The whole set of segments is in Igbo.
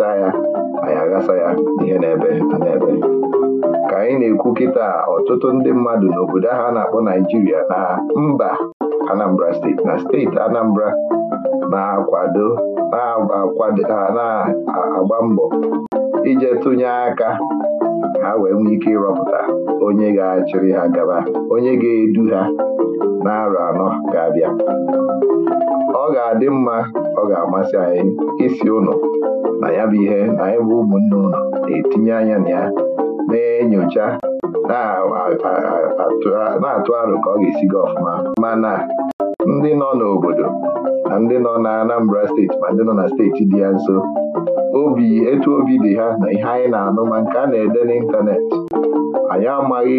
aghachaa ya anyị aghasa ya ihe na-ebe na-ebe ka anyị na-ekwu kịta ọtụtụ ndị mmadụ n'obodo ahụ a na-akpọ Naijiria na mba Anambra steeti na steeti Anambra na-akwado na-agba mbọ ije tụnye aka ha wee nwee ike ịrọpụta onye ga-achịrị ha gaba onye ga-edu ha na arọ anọ ga-abịa ọ ga-adị mma ọ ga-amasị anyị isi ụnụ na ya bụ ihe na anyị bụ ụmụnne ụnụ na-etinye anya na ya na-enyocha na-atụ aro ka ọ ga-esi gị ọfụma mana ndị nọ n'obodo na ndị nọ na Anambra steeti ma ndị nọ na steeti dị ya nso obi etu obi dị ha na ihe anyị na-anụ ma nke a na-ede n'ịntanetị anyị amaghị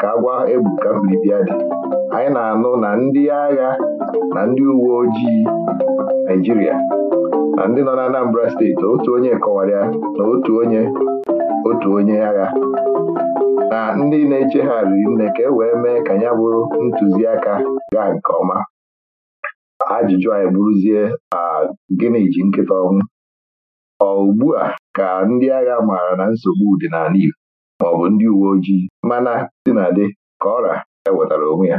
ka agwa ka mbilibịa dị anyị na-anụ na ndị agha na ndị uwe ojii Naịjirịa na ndị nọ na Anambra steeti otu onye kọwara na otu onye otu onye agha na ndị na-eche ha riri nne ka e wee mee ka ya bụrụ ntụziaka gaa nke ọma ajụjụ anyị bụrụzie gịnị ji nkịta ọnwụ ọ ugbu a ka ndị agha maara na nsogbu dị n'ala Igbo ma ọ bụ ndị uwe ojii mana dị na dị ka ọra ya wetara onwe ya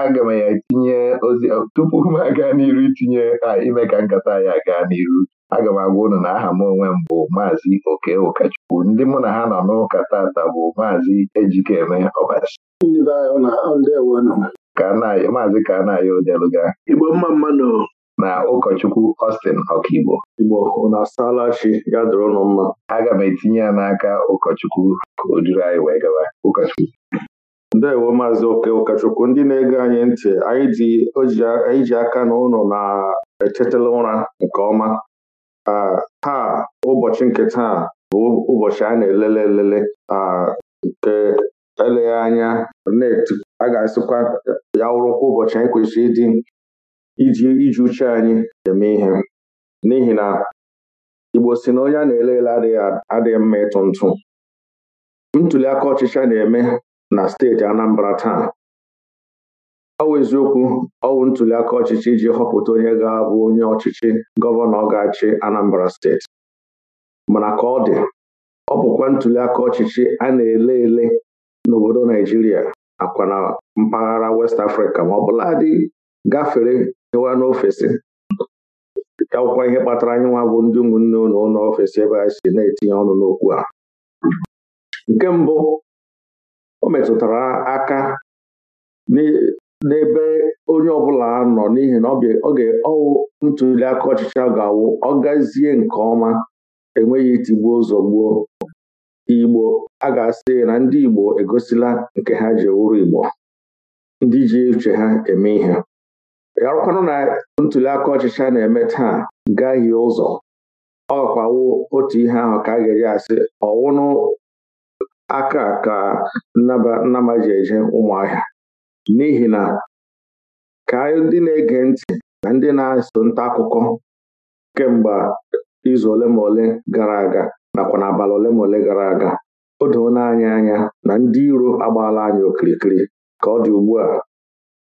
aga m ya tinye ozi tupu m aga n'iru itinye ime ka nkata ya gaa n'iru aga m agwa ụnụ na aha m onwe m bụ Maazi oke ụkọchukwu ndị mụ na ha nọ n'ụka tata bụ Maazi ejikeme ọbasi maazị kanayo odeluga igbo mma mmanụ na ụkọchukwu Austin ọkaigbo Igbo unu asaala chi ya dụrụ ụnụ mma aga m etinye ya n'aka ụkọchukwu ka o duru anyị wee gawa. ụkọchukwu ndewo maazị oke ụkọchukwu ndị na-ege anyị ntị anyị ji aka na ụlọ na echetala ụra nke ọma taa ụbọchị nke taa bụ ụbọchị a na-elele elele nke eleghị anya a ga-asịkwa ya wụrụkwa ụbọchị anyị kwesịrị ịdị iji iji uche anyị eme ihe n'ihi na Igbo si na onye a na-ele ele adịghị mma ịtụ ntụ ntuli aka ọchịchị na-eme na steeti Anambra taa ọwụ eziokwu ọwụ ntuli aka ọchịchị iji họpụta onye ga-abụ onye ọchịchị gọvanọ ọ ga Anambra steeti mana ka ọ dị ọ bụkwa ntuli ọchịchị a na-ele ele n'obodo Naijiria nakwa na mpaghara West Africa ma ọ bụla dị gafere gawa n'ofesi akwụkwọ ihe kpatara anyị nwa bụ ndị ụmụnne ụlọ ụlọ ofesi ebe a si na-etinye ọnụ n'okwu a nke mbụ o metụtara aka n'ebe onye ọbụla nọ n'ihi na oge ọwụ ntuli aka ọchịcha ga-awụ ọ gazie nke ọma enweghị itigbuo ụzọ gbuo igbo a ga-asị na ndị igbo egosila nke ha ji wụrụ igbo ndị ji uche ha eme ihe ọkwanụ na ntuliaka ọchịcha ọchịchị na-eme taa gaghị ụzọ ọkwawo otu ihe ahụ ka a ga-eji asị ọwụnụ aka ka nnama ji eje ụmụahịa n'ihi na ka ndị na-ege ntị na ndị na-eso nta akụkọ kemgbe izu ole ma ole gara aga nakwa n'abalị ole ma ole gara aga o doona anyị anya na ndị iro agbaala anyị okirikiri ka ọ dị ugbu a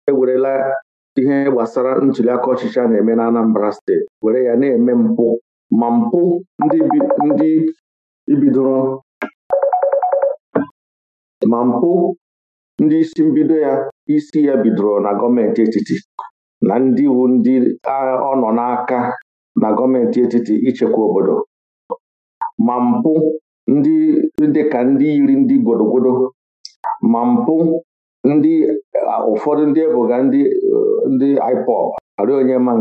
ewerela ihe gbasara ntuliaka ọchịchị na-eme na Anambra steeti were ya na-eme mpụ ma mpụ ndị ibidoro ma mpụ ndị isi mbido ya isi ya bidoro na gọọmenti etiti na ndị iwu ndị ọ nọ n'aka na gọọmenti etiti ichekwa obodo ma mpụ ndị dịka ndị yiri ndị gwodogwodo ma mpụ ụfọdụ ndị ebuga ndị ndị IPOB arị onye ma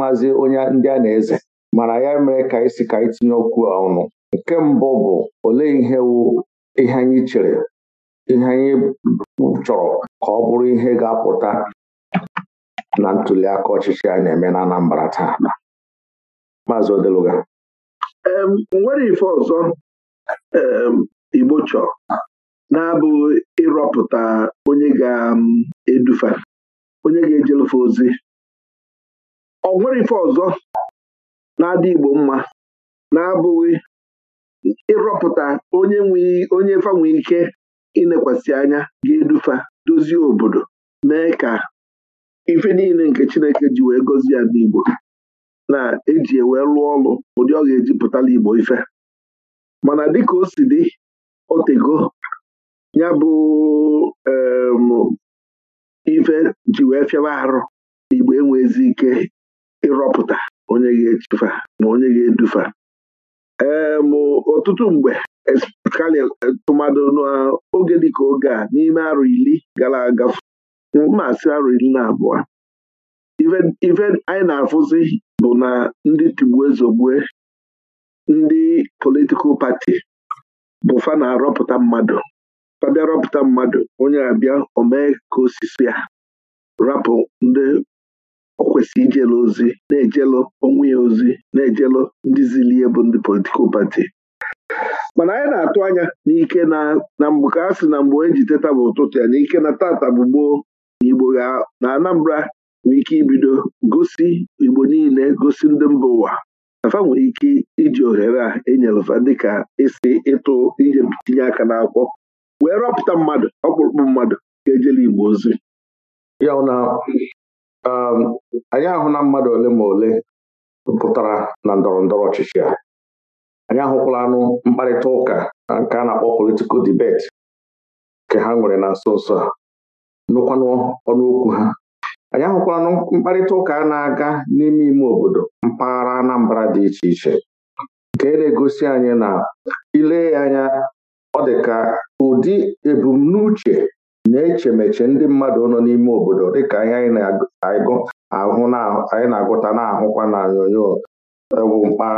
maazị onye ndị a na-eze mana ya mere ka anyị ka anyị tinye okwu ọnụ nke mbụ bụ olee ihe anyị chere ihe anyị chọrọ ka ọ bụrụ ihe ga-apụta na ntuliaka ọchịchị a na-eme na Anambra taa Maazị Odeluga nwere ife ọzọ Igbo chọrọ. na ịrọpụta onye ga-edufa onye ga-ejelufe ozi ọ nwere ife ọzọ na-adị Igbo mma na-abụghị ịrọpụta onye onye fa ike inekwasị anya ga-edufa dozie obodo mee ka ife niile nke Chineke ji wee gọzie ya n'igbo na-eji ewee rụọ ọrụ ụdị ọ ga-eji Igbo ife mana dịka o si dị otego ya bụ ife ji wee fịawa arụ igbo enwezi ike ịrọpụta onye ga-echifa ma onye ga-edufa ọtụtụ mgbe kali tụmadụ n'oge dịka oge a n'ime arụ ili gara aga mmasị arụ ili na abụọ ife anyị na-afụzi bụ na ndị tigbue ndị politikal pati bụfa na-arọpụta mmadụ ọ bịa rọpụta mmadụ onye abịa omee ka osisi ya rapụ ndị o kwesịrị ijelu ozi na-ejelu onwe ya ozi na-ejelu ndị zilie bụ ndị politikal pati mana anyị na-atụ anya n'ike na mgbe ka a sị na mgbe onye ji teta bụ ụtụtụ ya na ike na tata bụ gboo na igbo na anambra nwere ike ibido gosi igbo niile gosi ndị mba ụwa afa nwere ike iji ohere a enyelụfa dịka isi ịtụ ihe tinye aka n'akwụkwọ wee rọpụta mmadụ ọkpụrụkpụ mmadụ ga-ejela igbo ozi ya na um, anyị ahụ na mmadụ ole ma ole pụtara na ndọrọ ndọrọ ọchịchị a anyị ahụkwala anụ mkparịta ụka nke a na-akpọ politikal debeti nke ha nwere na nso nso a nụkwanụ ọnụ ha anyị anụ mkparịta ụka a na-aga n'ime ime obodo mpaghara Anambra dị iche iche nke na-egosi anyị na ile anya ọ dị ka ụdị ebumnuche na-echemeche ndị mmadụ nọ n'ime obodo dịka ihe anyị na-agụta na-ahụkwa na nyonyo bụ e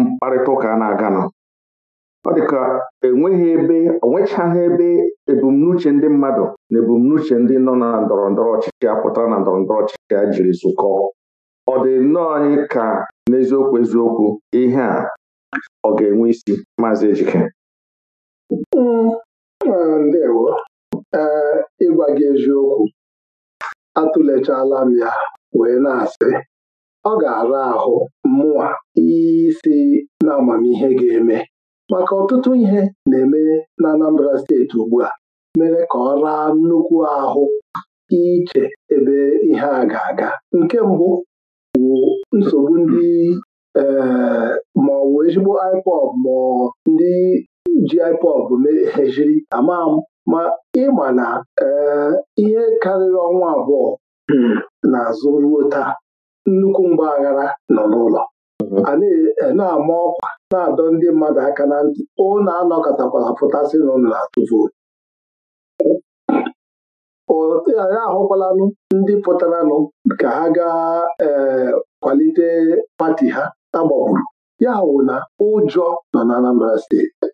mkparịta ụka na-aganụ ọ ka enweghị ebe onwechaghị ebe ebumnuche ndị mmadụ na ebumnuche ndị nọ na ndọrọ ndọrọ ọchịchị a na ndọrọ ndọrọ ọchịchị a jiri zụkọọ ọ dị nnọọ anyị ka n'eziokwu eziokwu ihe a ọ ga-enwe isi maazị Ejike ndewo ee ịgwa gị eziokwu atụlechala m ya wee na-asị ọ ga-ara ahụ mụnwa isi na amamihe ga-eme maka ọtụtụ ihe na-eme na Anambra steeti ugbu a mere ka ọ raa nnukwu ahụ iche ebe ihe a ga-aga nke mbụ bụ nsogbu ndị ee maọbụ ezigbo iPod ma ndị ji iPod jiri ama m ma ịma na eh, ihe karịrị ọnwa abụọ hmm, n'azụ ruo taa nnukwu mgbaghara aghara nọ n'ụlọ mhm. a eh, na-ama ọkwa na-adọ ndị mmadụ aka na ntị ụnụ anọkọtakwala pụtasị na ụlọ na-atụ vootu anyị ahụkwalanụ ndị pụtaranụ ka ha gaa ee eh, kwalite pati ha agbagburu ya hụ na ụjọ nọ na Anambra steeti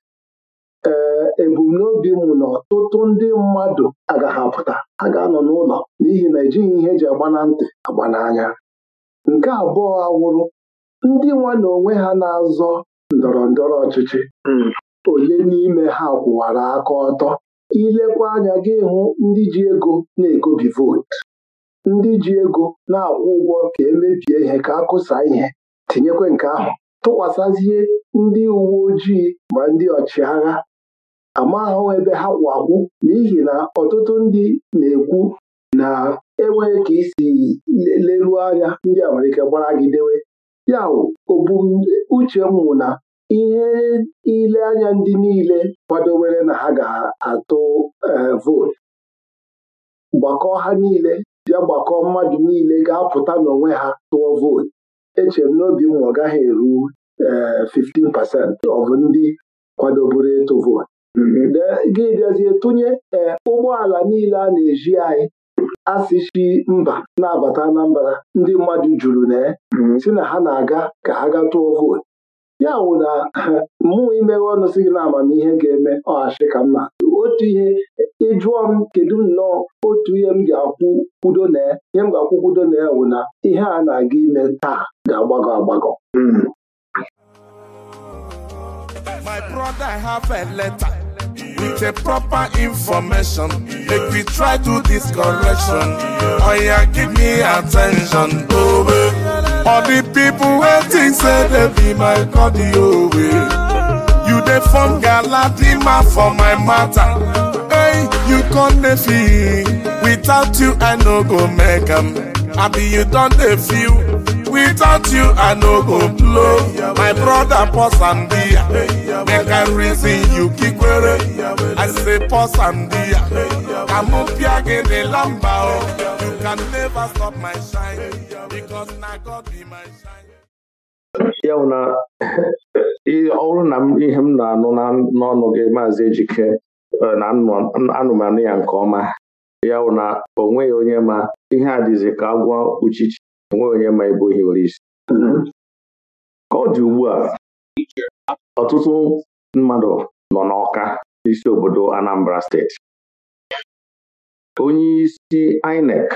ee ebumnobi mụ na ọtụtụ ndị mmadụ agaghị apụta ha ga-anọ n'ụlọ n'ihi na ejighị ihe eji agba na ntị agba n'anya nke abụọ awụrụ ndị nwa na onwe ha na-azọ ndọrọ ndọrọ ọchịchị hmm. ole n'ime ha kwụwara aka ọtọ ilekwa anya gị hụ ndị ji ego na-egobi vootu ndị ji ego na-akwụ ụgwọ ka emebie ihe ka a kụsa ihe tinyekwa nke ahụ tụkwasazie ndị uwe ojii ma ndị ọchịagha amaghụ ebe ha kwụ akwụ n'ihi na ọtụtụ ndị na-ekwu na enweghị ka isi leruo anya ndị amalike gbara gị dewe ya uche m na ihe ile anya ndị niile kwadowere na ha ga-atụ e, vootu gbakọọ ha niile bịa gbakọọ mmadụ niile ga-apụta n'onwe ha tụọ vootu eche m n'obi m ọ gaghị eru 15 pasentị ọ bụ ndị kwadoburu ịtụ vootu gị bịazie tụnye ee eh, ụgbọala niile a na-eji anyị asịsi mba na-abata Anambra ndị mmadụ juru na mm, si na ha na-aga ka ha ga tụọ vootu ya wụ na mụnwa imeghe ọnụ sị gị na amamihe ga-eme ọghachi ka mma, otu ihe ịjụọ m kedu nnọọ otu ihe m ga-akwụ kwudo na ihe m ga-akwụ kwudo na ya wụ na ihe a na-aga ime taa ga-agbagọ agbagọ mm. My brother have a letter. with a proper information. Make we try to this correction. Oh yeah, give me attention. Oh, yeah. All the people waiting say they be my cardio. Yeah. You they form Galadima for my matter. Hey, you can't defeat. Without you, I no go make am, I be you don't feel. without you i no go blow my brother pause and dia make i reason you kikwere i say pause and dia ka mụ pịa gị o you can never stop my shine because na god be my shine. ya na ọ bụrụ na ihe m na-anụ n'ọnụ gị maazị ejike na anụmanụ ya nke ọma ya bụ na o nweghị onye ma ihe a dịzi ka agwọ uchichi nwe onye ma ebe ohi nwere isi mm-hmm. ka ọ dị ugbu a ọtụtụ mmadụ nọ n'Ọka n'isi obodo Anambra steeti onye isi INEC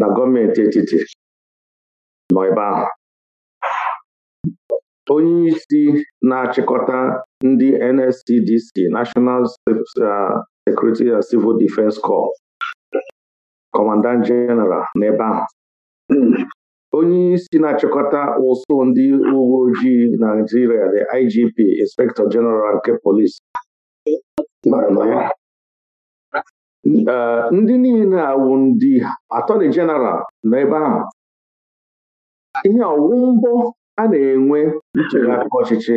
na gọọmenti etiti nọ ebe ahụ onye isi na-achịkọta ndị NSCDC National uh, Security and Civil Defense Corps Commandant General n'ebe ahụ onye isi na-achịkọta ụsụ ndị uwe ojii Naijiria the IGP Inspector General nke polisi eh, ndị niile awụ ndị atọni jeneral nọ ahụ ihe ọwụ mbọ a na-enwe ntụliaka ọchịchị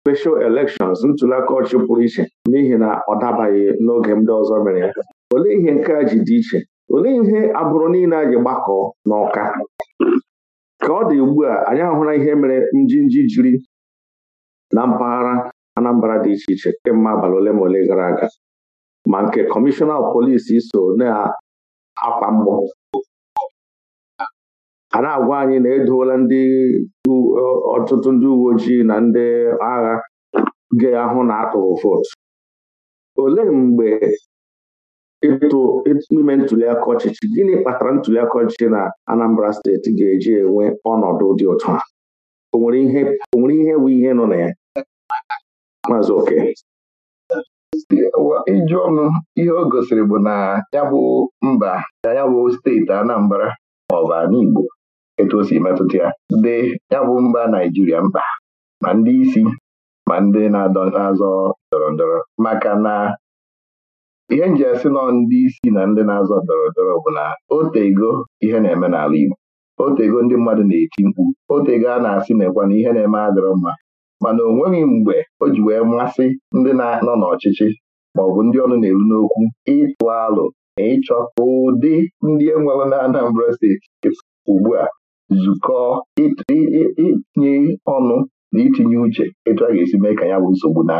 special elections ntụliaka ọchịchị pụrụ iche n'ihi na ọ dabaghị n'oge ndị ọzọ mere ya olee ihe nke a ji dị iche olee ihe abụrụ niile a gbakọọ n'ụka? ka ọ dị ugbu a anyị ahụla ihe mere njinji jiri na mpaghara Anambra dị iche iche kemgbe abalị ole ma ole gara aga ma nke kọmishọna polisi so na-akwa mgbọ na-agwa anyị na edoola ndị ọtụtụ ndị uwe ojii na ndị agha ga-ahụ na atụrụ vootu olee mgbe ịtụ ime ntuliaka ọchịchị gịnị kpatara aka ọchịchị na Anambra steeti ga-eji enwe ọnọdụ dị ụtọ a o nwere ihe bụ ihe nọ na ya maazị oke ijụọ ọnụ ihe o gosiri bụ na ya bụ mba na ya bụ steeti Anambra maọbụ ala etu o si metụta ya dị ya bụ mba Naijiria mkpa ma ndị isi ma ndị na-azọ ndọrọ ndọrọ maka na ihe m ji asị nọ ndị isi na ndị na-azọ ndọrọndọrọ bụ na otego ihe na-eme n'ala Igbo otego ndị mmadụ na-eti mkpu otego a na-asị na na ihe na-eme adịrọ mma mana o nweghị mgbe o ji wee mmasị ndị na-anọ n'ọchịchị ma ọ bụ ndị ọnụ na-eru n'okwu ịtụ alụ na ịchọ ụdị ndị enwere na Anambra steeti ugbu a zukọ itinye ọnụ na itinye uche etu a ga-esi mee ka ya bụ nsogbu na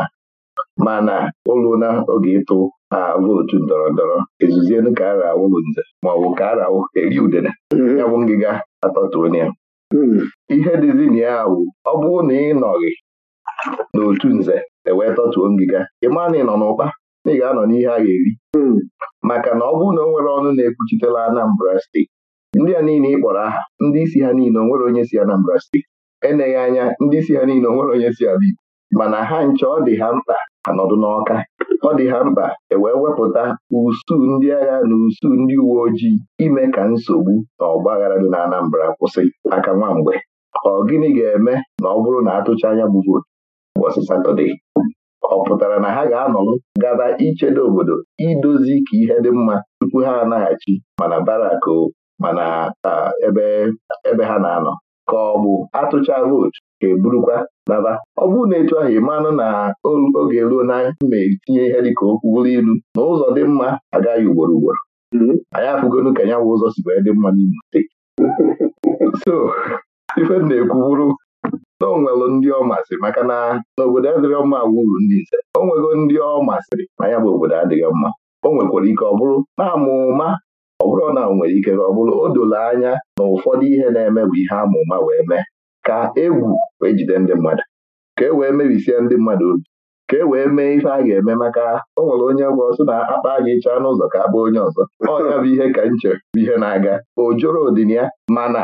mana oluna oge ịtụ a vootu ndọrọ ndọrọ ezuzienu ka ara ma nze bụ ka ara awụ eri udele mm-hmm. ya bụ ngịga atọtuonye ya mm-hmm. ihe dịzina ya bụ ọ bụrụ na ị nọghị n'otu nze ewee tọtuo ngịga ị na ị nọ n'ụkpa na ị ga-anọ n'ihe a ga-eri mm-hmm. maka na ọ bụrụ na o nwere ọnụ na-ekwuchitela Anambra steeti ndị a niile ị kpọrọ aha ndị isi ha niile onwere nwere onye si Anambra steeti eneghị anya ndị isi ha niile onwere onye si Abịa mana ha nche ọ dị ha mkpa anọdụ n'ọka ọ dị ha mkpa ewee wepụta usuu ndị agha na usuu ndị uwe ojii ime ka nsogbu na ọgbaghara dị na Anambra kwụsị aka nwa mgbe ọ gịnị ga-eme na ọ bụrụ na atụcha anya bụ vootu ụbọchị Satọde ọ pụtara na ha ga-anọrọ gaba ichedo obodo idozi ka ihe dị mma tupu ha anaghachi mana barak mana ah, ebe ha na-anọ ka ọ bụ atụcha vootu ka eburukwa naba ọ bụrụ na etu ahụ ị na oge ruo na mma etinye ihe dịka okwu bụrụ ilu na ụzọ dị mma agaghị ugboro ugboro anyị afụgonu ka nya bụ ụzọ si wee dị mma n'Imo steeti so ife na-ekwu bụrụ na o ndị ọ masịrị maka na n'obodo adịghị mma wuru ndị nze o ndị ọ masịrị ma ya bụ obodo adịghị mma o nwekwara ike ọ bụrụ na amụma ọ bụrụ na nwere ike ọ bụrụ o doro anya na ụfọdụ ihe na-eme bụ ihe amụma wee mee ka egwu wee jide ndị mmadụ ka e wee mebisie ndị mmadụ obi ka e wee mee ife a ga-eme maka o nwere onye gwa ọsọ na akpa a ga-echaa n'ụzọ ka abụ onye ọzọ ọ bụ ihe ka nche bụ ihe na-aga o joro odin ya mana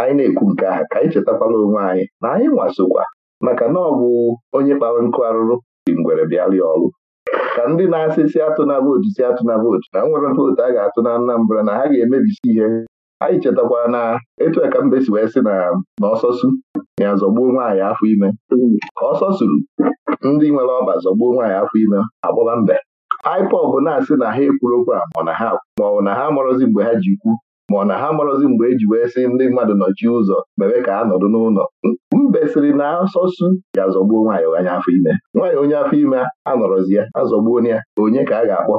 anyị na-ekwu nke aha ka anyị chetakwala onwe anyị na anyị nwasokwa maka na ọ bụ onye kpara nkụ arụrụ dị ngwere bịara ọrụ ka ndị na asị atụ na vootu si na vootu na nwere vootu a ga-atụ na Anambra na ha ga-emebisi ihe anyị chetakwara na etu ka mbe si wee sị na ọsọsụ ya zọgbuo nwaanyị afọ ime ka ọsọ ndị nwere ọba zọgbuo nwaanyị afọ ime agbaba mbe IPOB na-asị na ha ekwuru okwu a ma ọ na ha amụrụzi mgbe ha ji kwu ma ọ na ha marọzi mgbe eji wee sị ndị mmadụ nọchie ụzọ mere ka ha nọdụ n'ụlọ mbesịrị na asọsụ ga-azọgbuo nwaanyị onye afọ ime nwaanyị onye afọ ime anọrọzi ya azọgbuo na ya onye ka a ga-akpọ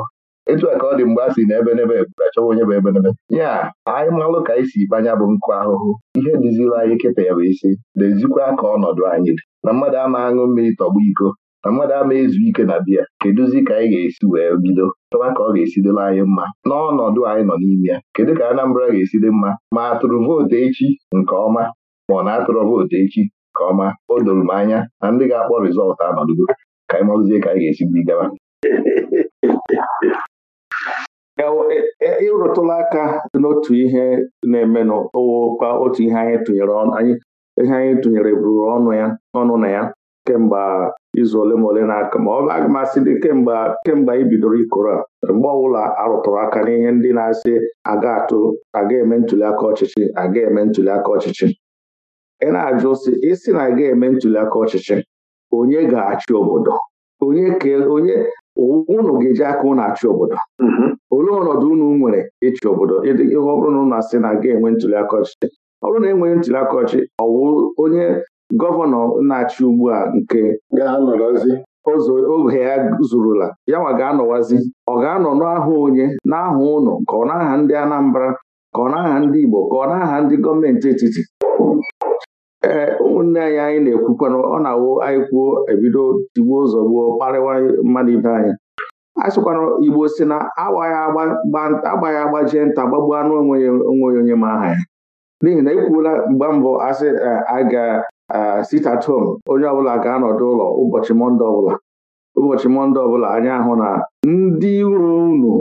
etu a ka ọ dị mgbe a si na ebenebe achọwa onye bụ ebenebe ya anyị malụ ka anyị si ikpanya bụ nkụ ahụhụ ihe dịzila anyị kịta ya bụ isi dezikwa ka ọnọdụ anyị dị na mmadụ ama aṅụ mmiri tọgbu iko na mmadụ ama ezu ike na biya kedụzi ka anyị ga-esi wee bido chọba ka ọ ga-esidole anyị mma n'ọnọdụ anyị nọ n'ime ya kedu ka Anambra ga-esi dị mma ma atụrụ vootu echi nke ọma ma ọ na-atụrụ vootu echi nke ọma o doro m anya na ndị ga-akpọ rịzọltụ anọdụgo ka anyị mazie ka anyị ga-esi bidogaba e, e, e, ịrụtụla aka n'otu ihe na-eme n'ụwa otu ihe anyị tụnyere ihe anyị tụnyere bụrụ ọnụ ya ọnụ na ya kemgbe izu ole ma ole na-aka ma ọ bụ aga asị dị kemgbe kemgbe anyị bidoro ikoro a mgbe ọbụla arụtụrụ aka n'ihe ndị na-asị aga atụ aga eme ntuliaka ọchịchị aga eme ntuliaka ọchịchị ị na-ajụ sị ịsị na aga eme ntuliaka ọchịchị onye ga-achị obodo onye ka onye ụnụ ga-eji aka ụnụ achị obodo mm-hmm. olee ọnọdụ unu nwere ịchị obodo ọ bụrụ na ụnụ asị na aga enwe ntuliaka ọchịchị ọ bụrụ na enweghị ntuliaka aka ọ onye gọvanọ na-achị ugbu a nke oge ya zurula ya nwa ga-anọwazi ọ ga-anọ n'aha onye n'aha ụnọ ka ọ n'aha ndị Anambra ka ọ n'aha ndị Igbo ka ọ n'aha ndị gọọmenti etiti ee ụmụnne anyị anyị na-ekwukwana ọ na-awụ anyị kwuo ebido tigbuo ụzọ gbuo kparịwa mmadụ ibe anyị a Igbo si na agbaghị agbajie nta gbagbuo anụ onwe ya onwe onye ma aha ya n'ihi na ekwuola mgbe mbụ asị aga Ah, sit at home onye ọbụla ga-anọdụ ụlọ ụbọchị mọnde ọbụla ụbọchị mọnde ọbụla anyị ahụ na ndị uru unu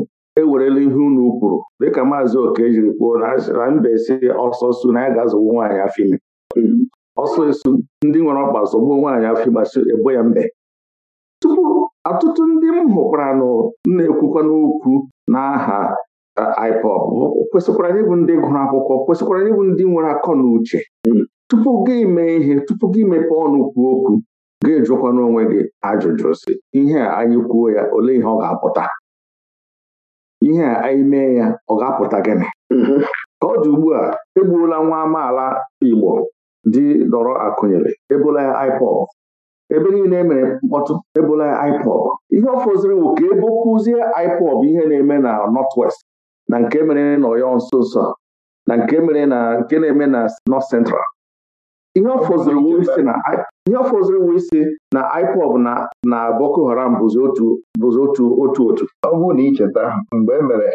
ewerela ihe unu kwuru dịka maazị oke jiri kwuo na mbesi esi su na ya ga-azụgbu nwaanyị afọ ime ọsọ esu ndị nwere ọkpa zọgbuo nwaanyị afọ ịgbasi ebo ya mbe tupu ọtụtụ ndị m hụkwara na-ekwukwa n'okwu n'aha ah, IPOB kwesịkwara bụ ndị gụrụ akwụkwọ kwesịkwara bụ ndị nwere akọ na uche tupu gị mee ihe tupu gị mepee ọnụ kwuo okwu gị jụkwa n'onwe gị ajụjụ si ihe a anyị kwuo ya olee ihe ọ ga-apụta ihe a anyị mee ya ọ ga-apụta gịnị mm-hmm. ka ọ dị ugbu a egbuola nwa amaala Igbo dị dọrọ akụnyere ebola ya ebe niile emere mkpọtụ ebola ya ihe ọ fọziri bụ ka ebo kwuzie ihe na-eme na West na nke mere na Ọyọ nso nso na nke mere na nke na-eme na North Central ihe ọ fọziri wu isi na IPOB na na Boko Haram bụzi otu otu otu ọ bụrụ na icheta mgbe e mere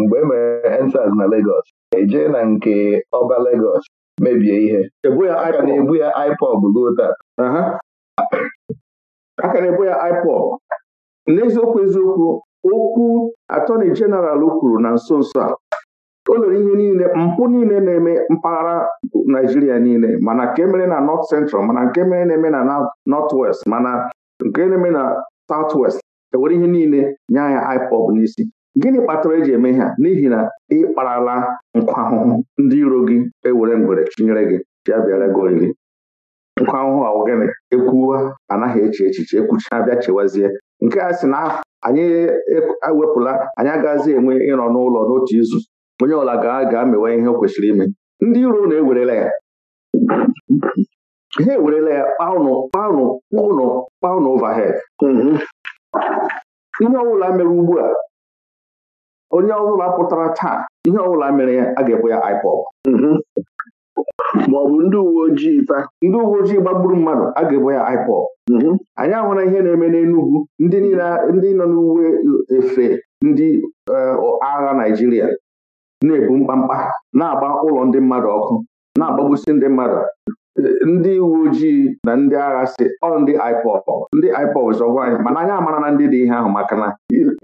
mgbe emere mere na Lagos eje na nke ọba Lagos mebie ihe e aka na-ebu ya IPOB ruo taa aka na-ebu ya IPOB n'eziokwu eziokwu okwu atọni jeneral kwuru na nso nso a o lere ihe niile mpụ niile na-eme mpaghara naijiria niile mana nke mere na nọt central mana nke mere na-eme na nọt west mana nke na-eme na south west ewere ihe niile nye ya ipob n'isi gịnị kpatara eji eme ha n'ihi na ị kparala nkwa ahụhụ ndị iro gị ewere ngwere chinyere gị bịa bịara gị nkwa ahụhụ ahụ gịnị ekwuwa anaghị eche echiche ekwuchi abịa chewazie nke a sị na anyị ewepụla e, anyị agazi enwe ịnọ n'ụlọ n'otu izu onye ọla ga-amewe ihe o kwesịrị ime ndị iro na ewerela ya ha ewerela ya kpaụnụ kpaụnụ kpaụnụ kpaụnụ overhead mhm. ihe ọbụla mere ugbu a onye ọbụla pụtara taa ihe ọbụla mere ya a ga-ekwe ya IPOB mhm. maọbụ ndị uwe ojii ta ndị uwe ojii gbagburu mmadụ a ga-ebo ya IPOB mhm. anyị ahụla ihe na-eme n'Enugwu ndị nọ n'uwe efe ndị eh, agha Naijiria. na-ebu mkpamkpa na-agba ụlọ ndị mmadụ ọkụ na-agbagbusi ndị mmadụ ndị uwe ojii na ndị agha si ọ ndị IPOB ndị IPOB zọgwa anyị mana anyị amara na ndị dị ihe ahụ maka na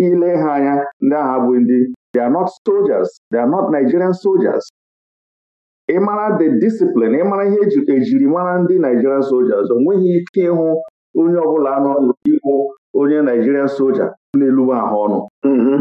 ile ha anya ndị agha bụ ndị they are not soldiers they are not Nigerian soldiers mara the discipline ịmara ihe ejiri mara ndị Nigerian soldiers o nweghị ike ịhụ onye ọbụla nọ n'ikwu onye Nigerian soldier na-elugbu ahụ ọnụ mm-hmm.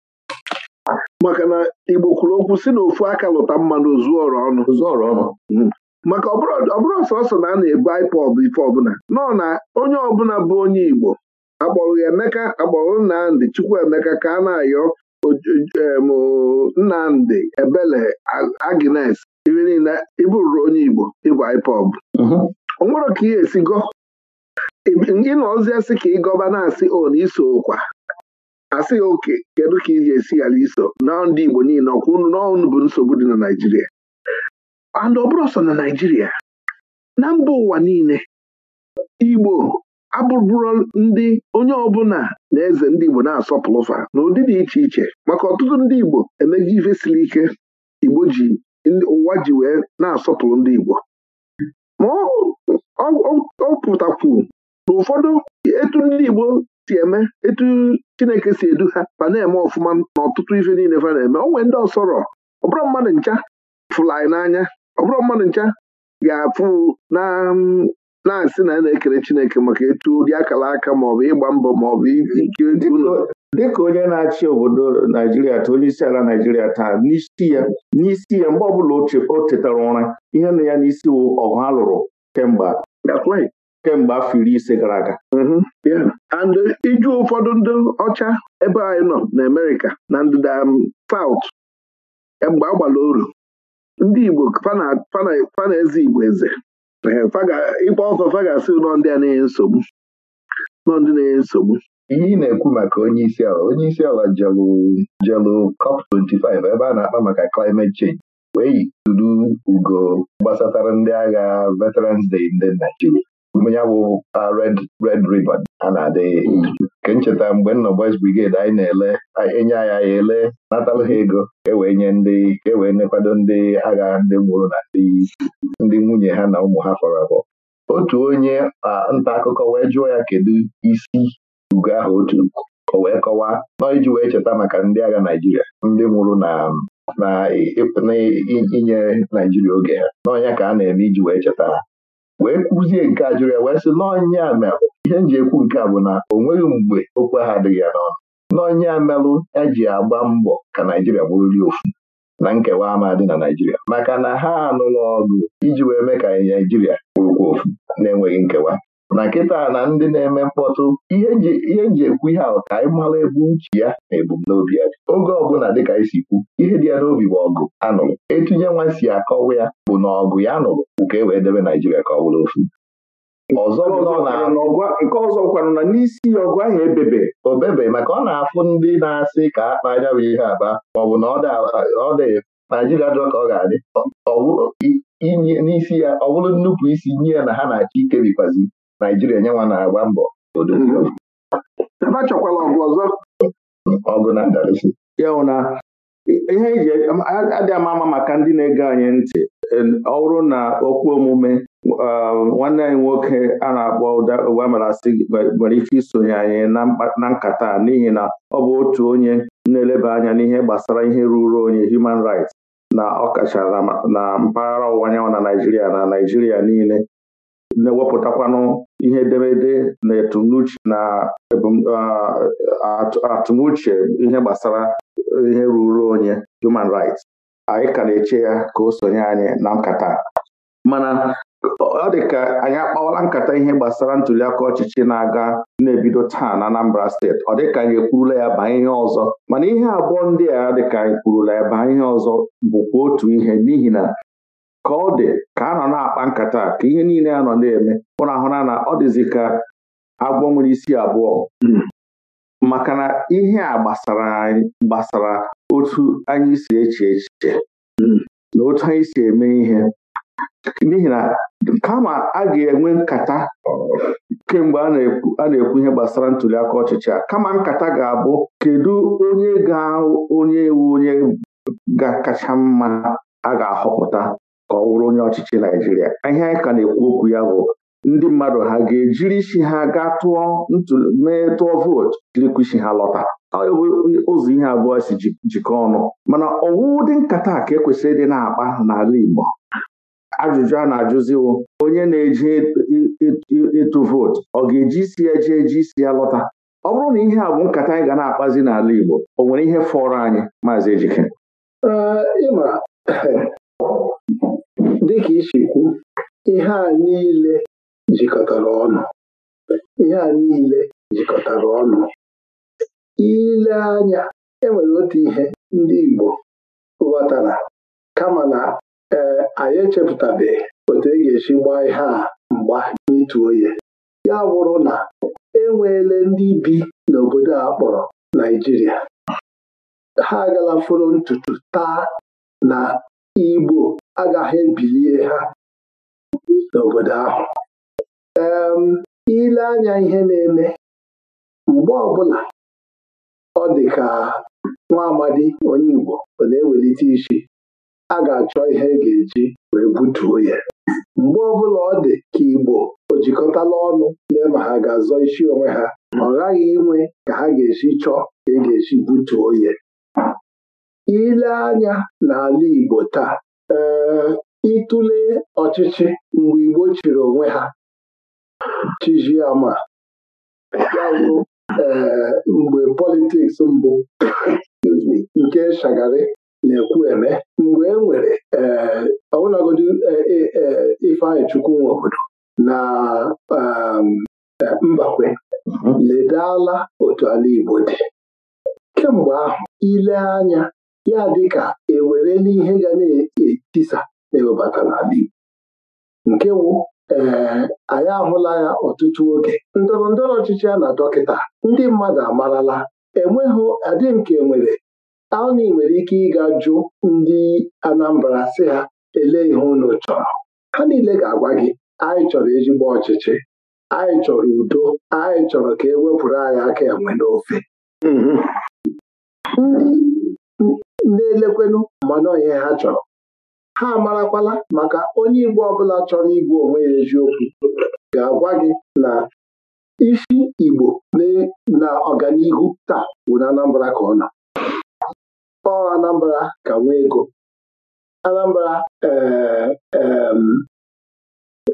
maka na Igbo kwuru okwu si na ofu aka lụta mmanụ zuọrọ ọnụ hmm. maka ọbụrụ sọsọ na a na-ebu ipob ife ọbụla nọ na onye ọbụla bụ onye Igbo akpọrọ Emeka akpọrọ Nnamdị Chukwuemeka ka a na-ayọ Nnamdị Ebele Agnes ife niile ịbụrụrụ onye Igbo ịbụ ipob ọ mhm. nwere ka ị esi gọ ịnọzi asị ka ị gọba na-asị o asị ya oke kedu ka iji esi ala iso na ndị Igbo niile ọkwụ n'ọnụ bụ nsogbu dị na Naijiria. and ọ sọ na Naijiria, na mba ụwa niile Igbo abụbụrụ ndị onye ọbụla na eze ndị Igbo na fa na ụdị dị iche iche maka ọtụtụ ndị Igbo emego ife siri ike Igbo ji ụwa ji wee na-asọpụrụ ndị Igbo ma ọ pụtakwu na ụfọdụ etu ndị Igbo si eme etu Chineke si edu ha ma na-eme ọfụma n'ọtụtụ ife niile fa na-eme o nwee ndị ọsọrọ ọbụrụ mmadụ ncha fụrụ anyị n'anya ọbụrụ mmadụ ncha ga-afụ na mm, na-asị na asị na na ekere Chineke maka etu ụdị akara aka maọbụ ịgba mbọ maọbụ ike dịka onye na-achị obodo Naijiria taa onye isi ala Naijiria taa n'isi ya n'isi ya mgbe ọbụla o chetara ụra ihe na ya n'isi ọgụ ha lụrụ kemgbe kemgbe afọ iri ise gara aga mm-hmm. and uh, iju ụfọdụ ndị ọcha ebe anyị nọ na Amerịka na ndịda um, saut mgbe a gbara oru ndị Igbo fana eze Igbo eze ịkpa ọkọ fagasị nọ ndị a na-enye nsogbu nọ ndị na-enye nsogbu ihe ị na-ekwu maka onye isi ala onye isi ala jelu jelu COP 25 ebe a na-akpa maka climate change wee yi ugo gbasatara ndị agha Veterans Day ndị Naijiria ya bụ Red Red river a na-adịghị nke ncheta mgbe nọ Boys Brigade anyị na-ele enye anya ya ele natalụ ha ego ewee nye ndị ewee nekwado ndị agha ndị mụrụ na ndị nwunye ha na ụmụ ha fọrọ abụọ otu onye nta akụkọ wee jụọ ya kedu isi ugo ahụ otu o wee kọwaa nọ iji wee cheta maka ndị agha Naijiria ndị nwụrụ na na inye Naijiria oge ha n'ọnya ka a na-eme iji wee cheta ha wee kwuzie nke a jụrụ ya wee sị n'ọnya ihe m ekwu nke a bụ na o nweghị mgbe okwe ha adịghị ya n'ọnụ n'ọnya eji e agba mbọ ka Naijiria bụrụli ofu na nkewa ama dị na Naijiria maka na ha anụla ọgụ iji wee mee ka Naijiria bụrụkwa ofu na-enweghị nkewa na nkịta na ndị na-eme mkpọtụ ihe nji ekwu ihe ahụ ka anyị mara ebe uche ya na ebumnobi ya dị oge ọbụla dịka isi kwu ihe dị ya n'obi bụ ọgụ anụrụ etinye nwa si akọwa ya bụ na ọgụ ya nụrụ nke e wee debe Naijiria ka ọ bụrụ ofu nke ọzọ kwanụ na n'isi ọgụ ahụ ebebe obebe maka ọ na-afụ ndị na-asị ka akpa anya bụ ihe aba maọbụ na ọ dị Naijiria dị ka ọ ga-adị n'isi ya ọ bụrụ nnupụ isi nye ya na ha na-achọ ikebikwazi Naijiria nyenwa na-agba mbọ ebe a chọkwala ọgụ ọzọ ọgụ na-adarịsị ya na ihe iji e adị ama ama maka ndị na-ege anyị ntị ọ bụrụ na okwu omume nwanne anyị nwoke a na-akpọ ụdamarasị nwere ike isonye anyị na nkata n'ihi na ọ bụ otu onye na-eleba anya n'ihe gbasara ihe ruru onye human rights na ọkacha na mpaghara ọwụwa anyanwụ na Naijiria na Naijiria niile na-ewepụtakwanụ ihe edemede na etumunuche na atụmuche ihe gbasara ihe ruru onye human rights anyị ka na-eche ya ka o sonye anyị na nkata mana ọ dị ka anyị akpawala nkata ihe gbasara ntuliaka ọchịchị na-aga na-ebido taa na Anambra steeti ọ dịka anyị ekwurula ya baa ihe ọzọ mana ihe abụọ ndị a dịka anyị kwurula ya baa ihe ọzọ bụkwa otu ihe n'ihi na ka ọ dị ka a nọ na-akpa nkata ka ihe niile a nọ na-eme ụra ahụna na ọ dịzi ka agwọ nwere isi abụọ hmm. maka na ihe a gbasara gbasara otu anyị si eche echiche hmm. na otu anyị si eme ihe n'ihi na kama a ga-enwe nkata kemgbe a na-ekwu ihe gbasara ntuli aka ọchịchị a kama nkata ga-abụ kedu onye ga onye wu onye ga-akacha mma a ga-ahọpụta ka ọ wụrụ onye ọchịchị Naijiria, ihe anyị ka na-ekwu okwu ya bụ ndị mmadụ ha ga-ejiri isi ha ga tụọ mee tụọ vootu jirikwa isi ha lọta ụzọ ihe abụọ si jikọ ọnụ mana ọwụ dị nkata ka ekwesịrị dị na-akpa n'ala Igbo ajụjụ a na-ajụziwo onye na eji ịtụ vootu ọ ga-eji isi ya jee eji isi ya lọta ọ bụrụ na ihe a bụ nkata anyị ga na-akpazi n'ala Igbo o nwere ihe fọrọ anyị maazị Ejike dịka isi kwu ihe a niile jikọtara ọnụ ihe a niile jikọtara ọnụ ile anya enwere otu ihe ndị Igbo ghọtara kama na ee anyị echepụtabeghị otu e ga-esi gbaa ihe a mgba n'ịtụ oye ya bụrụ na enweele ndị bi n'obodo a kpọrọ Naijiria ha agala fọrọ ntutu taa na Igbo agaghị ebilie ha n'obodo ahụ ile anya ihe na-eme mgbe ọbụla ọ dị ka nwa amadi onye Igbo ọ na-ewelite isi a ga-achọ ihe e ga-eji wee butuo ya mgbe ọbụla ọ dị ka Igbo o jikọtala ọnụ lee ma ha ga-azọ isi onwe ha ọ ghaghị inwe ka ha ga-esi chọọ ka e ga-esi butuo ya ile anya n'ala Igbo taa ee ịtụle ọchịchị mgbe Igbo chịrị onwe ha chijiama ee mgbe politiks mbụ nke Shagari na-ekwu eme mgbe e nwere ee ọbụlagodi e, e, e, Ifeanyị Chukwu na Mbakwe mhm. ledala otu ala Igbo dị kemgbe ahụ ile anya ya dịka ewere n'ihe ga na-etisa ewebata n'ala Igbo nke wụ ee eh, anyị ahụla ya ọtụtụ oge ndọrọ ndọrọ ọchịchị a na dọkịta ndị mmadụ amarala enweghị adị nke nwere aụni nwere ike ịga jụ ndị Anambra si ha elee ihe unu chọrọ ha niile ga-agwa gị anyị chọrọ ezigbo ọchịchị anyị chọrọ udo anyị chọrọ ka e wepụrụ anyị aka enwe n'ofe mm-hmm. ndị ndị elekwenụ mana onye ha chọrọ ha marakwala maka onye Igbo ọbụla chọrọ igwe onwe ya eziokwu ga-agwa gị na isi Igbo na ọganihu taa bụ na Anambra ka ọ na ọ Anambra ka nwee ego Anambra eh,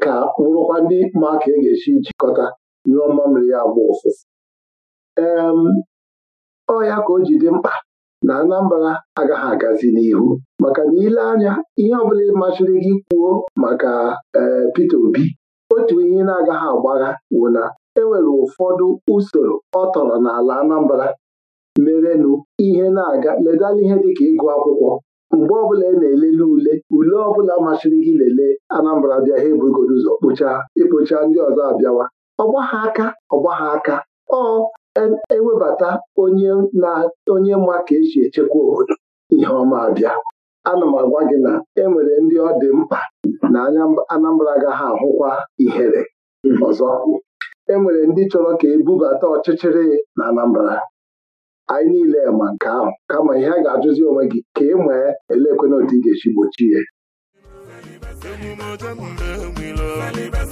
ka wụrụkwa ndị ma ka e ga-esi jikọta nyụọ mmamịrị ya agba ụfụfụ ee ọ ya ka o ji dị mkpa na Anambra agaghị agazi n'ihu maka na ile anya ihe ọbụla masịrị gị kwuo maka e, Peter Obi otu ihe na-agaghị agbagha bụ na enwere ụfọdụ usoro ọ tọrọ n'ala Anambra merenụ ihe na-aga ledala ihe dịka ịgụ akwụkwọ mgbe ọbụla ị e na-elele ule ule ọbụla masịrị gị lele Anambra bịa ha ebugoro ụzọ kpocha ikpocha ndị ọzọ abịawa ọgbagha aka ọgbagha aka ọ ewebata onye na onye mma ka esi echekwa obodo ihe ọma abịa ana m agwa gị na e nwere ndị ọ dị mkpa na Anambra agaghị ahụkwa ihere ọzọ e nwere ndị chọrọ ka e bubata ọchịchịrị na Anambra anyị niile ma nke ahụ kama ihe a ga-ajụzi onwe gị ka ị e nwee elekwe ị ga-esi gbochie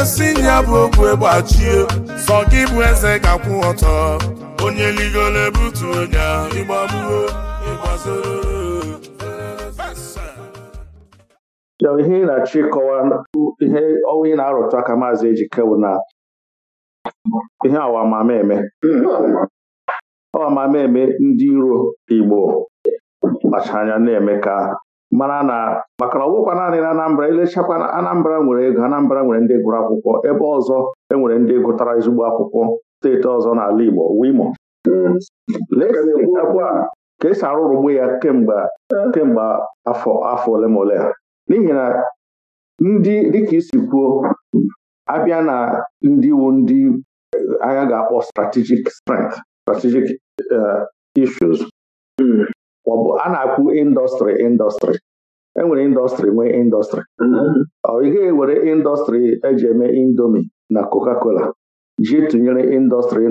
osi ya bụ okwe gbachie sọ gị bụ eze ga-akwụ ọtọ onye ligoro ebutu onye ịgbagbuo ịgbazoro ihe ị na-achọ ịkọwa ihe ọnwa ị na-arụtụ aka maazị Ejike bụ na ihe awamameme awamameme ndị iro Igbo kpacha anya na-eme ka mana na maka na ọwụkwa naanị na Anambra elechakwa Anambra nwere ego Anambra nwere ndị gụrụ akwụkwọ ebe ọzọ e nwere ndị gụtara ezigbo akwụkwọ steeti ọzọ n'ala Igbo wimo ka esi arụrụgbu ya kemgbe kemgbe afọ afọ ole ma ole n'ihi na ndị dịka isi kwuo abịa na ndị iwu ndị anya ga-akpọ strategic strength strategic eh, issues hmm. ọbụ a na-akwụ indọstrị indọstrị enwere indọstrị nwee indọstrị mm-hmm. ọ gaghị ewere indọstrị eji eme indomi na coca-cola ji tụnyere indọstrị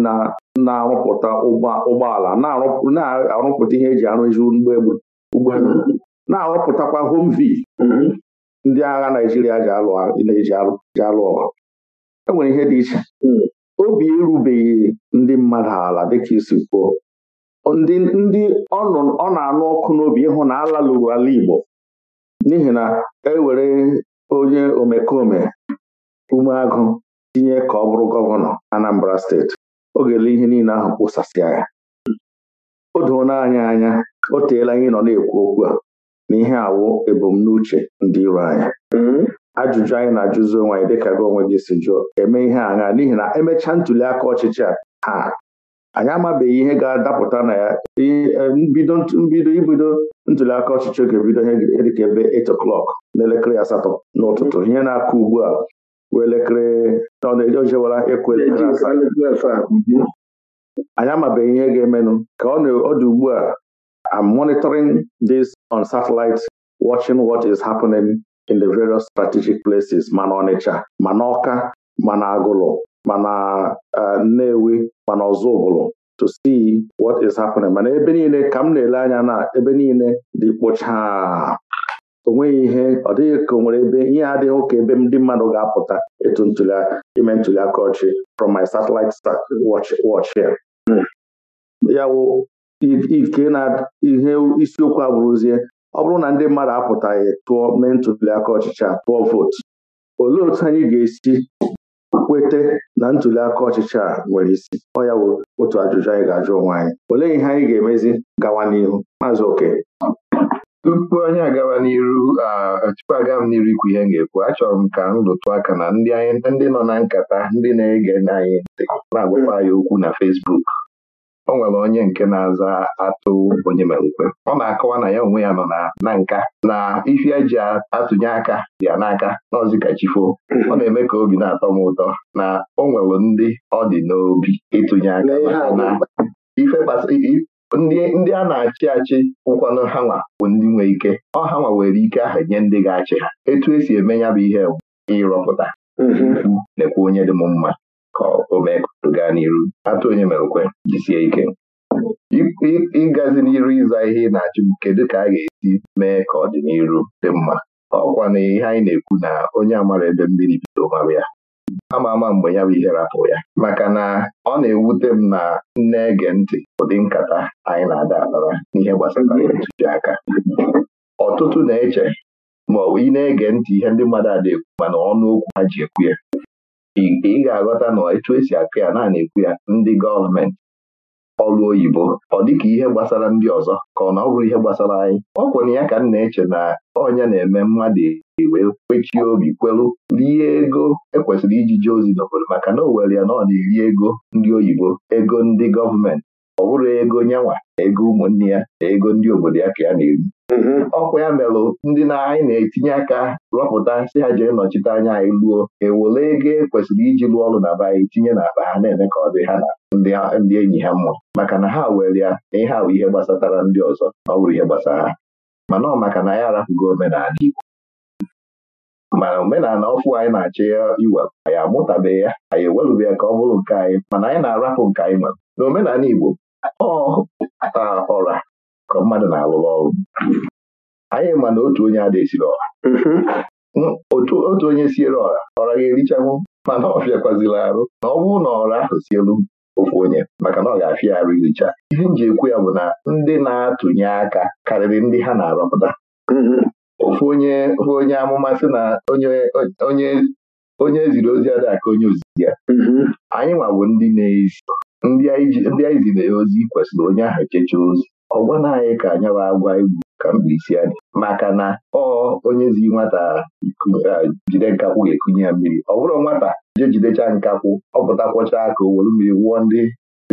na-arụpụta ụgbọala na-arụpụta ihe eji arụzi ụgbọelu mm-hmm. na-arụpụtakwa homvi mm-hmm. ndị agha Naijiria ji alụ ọgụ enwere ihe dị iche mm. obi erubeghị ndị mmadụ ala dịka isi kwuo ndị ndị ọ na-anụ ọkụ n'obi ịhụ na alalụrụ ala Igbo n'ihi na ewere onye omekome ume umeagụ tinye ka ọ bụrụ gọvanọ Anambra steeti o ga ihe niile ahụ kpụsasịa ya o doona anyị anya o teela anyị nọ na-ekwu okwu a na ihe awụ ebumnuche ndị iro anya mm-hmm. ajụjụ anyị na-ajụzi onwe anyị dịka gị onwe gị si jụọ eme ihe agha n'ihi na emechaa ntuli aka ọchịchị a ha anyị amabeghị ihe ga-adapụta na ya mbido ibido ntuliaka ọchịchị oge bido ihe dịka ebe 8 o'clock n'elekere asatọ n'ụtụtụ ihe na-akụ ugbu a wee elekere ọ na ojewara ịkụ elekere anyị amabeghị ihe ga-emenụ ka ọ dị ugbu a I'm monitoring this on satellite watching what is happening in the various strategic places ma na Ọnịcha ma na Ọka ma na Agụlụ mana eh, Nnewi mana ụbụla to see what is happening mana ebe niile ka m na-ele anya na ebe niile dị kpụchaa onweghị ihe ọ dịghị ka nwere ebe ihe adịghị ka ebe ndị mmadụ ga-apụta etu ime ntuli aka ọchị from my satellite watch here ya wụ ike na ihe isiokwu abụrụzie ọ bụrụ na ndị mmadụ apụtaghị tụọ mee ntuli aka tụọ vootu olee otu anyị ga-esi kwete na ntuli aka ọchịchị a nwere isi ọ ya bụ otu ajụjụ anyị ga-ajụ onwe anyị olee ihe anyị ga-emezi gawa n'ihu maazị oke tupu anyị agawa n'iru tupu aga m n'iru ikwu ihe m ga-ekwu achọrọ m ka m lụtụ aka na ndị nọ na nkata ndị na-ege anyị ntị na-agwakwa anyị okwu na fesbuk. o nwere onye nke na-aza atụ onye mere ọ na-akọwa na ya onwe ya nọ na nka na ife eji atụnye aka ya n'aka n'ọzi ka hmm. ọ na-eme ka obi na-atọ m ụtọ na o nwere ndị ọ dị n'obi ịtụnye aka na ife ndị a na-achị achị ụkwanụ ha nwa bụ ndị nwee ike ọ ha nwa were ike ahụ nye ndị ga-achị ha etu esi eme ya bụ ihe ịrọpụta hmm. lekwa onye dị m mma ka o mee gaa n'iru atụ onye mere ukwe jisie ike ịgazi n'iru ịza ihe ị na-achụ kedu ka a ga-esi mee ka ọdịniru dị mma ọkwa na ihe anyị na-ekwu na onye amara ebe mmiri bido mara ya ama ama mgbe ya bụ ihe rapụ ya maka na ọ na-ewute m na nne ege ntị ụdị nkata anyị na-ada akpara n'ihe gbasara ntụziaka ọtụtụ na-eche ma ọ bụ ị na-ege ntị ihe ndị mmadụ ada ekwu mana ọnụ okwu ha ji ekwu ya ị ga-aghọta na etu esi akụ ya naanị ekwu ya ndị gọọmenti ọgụ oyibo ọ dịka ihe gbasara ndị ọzọ ka ọ na ọ bụrụ ihe gbasara anyị ọ kwere ya ka m na-eche na ọnya na-eme mmadụ wee kwechie obi kwelu rie ego ekwesịrị iji jee ozi n'obodo maka na o were ya na ọ na-eri ego ndị oyibo ego ndị gọọmenti ọ bụrụ ego nyanwa ego ụmụnne ya na ego ndị obodo ya ka ya na-eri Mhm. ọkwa ya melụ ndị na anyị na-etinye aka rọpụta si ha jee nọchite anya anyị luo ewole ego e kwesịrị iji lụọ ọrụ na be anyị tinye n'akpa ha na-eme ka ọ dị ha na ndị enyi ha mma maka na ha were ya na ihe awụ ihe gbasatara ndị ọzọ ọ bụrụ ihe gbasara ha mana ọ maka na anyị arapụgo omenala Igbo mana omenala ọfụ anyị na-achọ ya iwepụ anyị amụtabeghị ya anyị ewelụbe ya ka ọ bụrụ nke anyị mana anyị na-arapụ nke anyị nwere na omenala Igbo ọ ọra ka mmadụ na-alụrụ ọrụ anyị ma na otu onye adịghị ọha mm-hmm. otu onye siere ọra ọra ga-erichanwụ mana ọ fịakwazila arụ na ọ bụrụ na ọra ahụ sielu ofu onye maka na ọ ga-afịa arụ iricha ihe m ji ekwu ya bụ na ndị na-atụnye aka karịrị ndị ha na-arọpụta mm-hmm. ofu onye ofu onye amụma sị na onye onye ziri ozi adịghị aka onye ozizi ya mm-hmm. anyị nwa bụ ndị na-ezi ndị anyị ziri ya ozi kwesịrị onye ahụ checha ozi ọ gwana anyị ka anyawa agwa egwu ka mbilisi anyị maka na ọ onye zi nwata jide nkakwụ ga-ekunye ya mmiri ọ bụrụ nwata jee jidecha nkakwụ ọ pụtakwọcha aka o were mmiri wụọ ndị